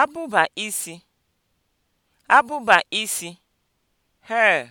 abụba isi abụba isi (hair)